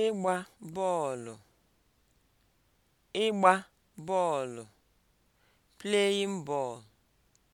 ịgba bọọlụ ịgba bọọlụ (playing ball)